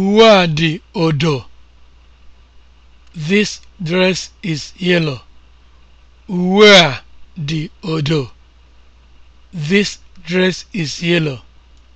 Uwe a dị odo. This odo. This dress is yellow.